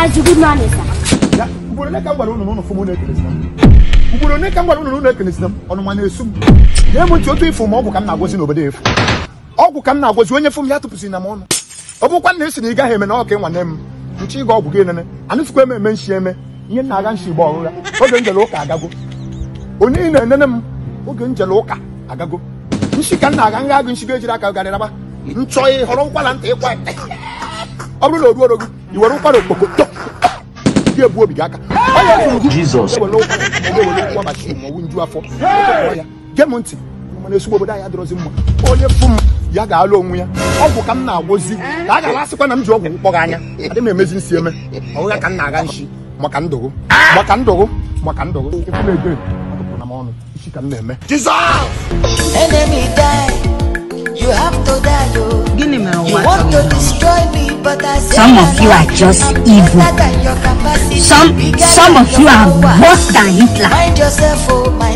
ugboro ole ka m gwara m ọnụ ma na-esu m nye otu ifo ma ọgwụ ka m na-agwọzi n'obodo efu ọgwụ ka m na-agwọzi onye fom ya tụpụsịrị na m ọnụ ọ bụkwa na esi na ị gaghị eme na ị nwanne m nchi ịga ọgwụ gị enene anụsịkwa eme eme eme ihe na-aga oge njele ụka agago onye ị na-enene m oge njele ụka agago ka m na-aga nga agụ nshi ga ejiri aka garịraba nchọ họrọ ntị ịkwa ọ bụrụ na o ruoro gị i were ụkwara okpoko gị egbu obi gị aka onye m ntị obodo anya mma onye m ya ga-alụ onwe ya ọgwụ ka m na-agwụzi ka a na m ji ọgwụ mkpọrọ anya adị m emezi nsi eme ọgwụ ka m na-aga nshi maka ndụgụ maka ndụgụ maka Some of you are just evil. Some some of you are worse than Hitler.